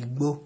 igbo.